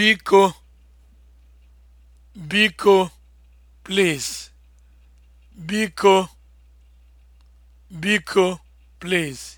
biko biko please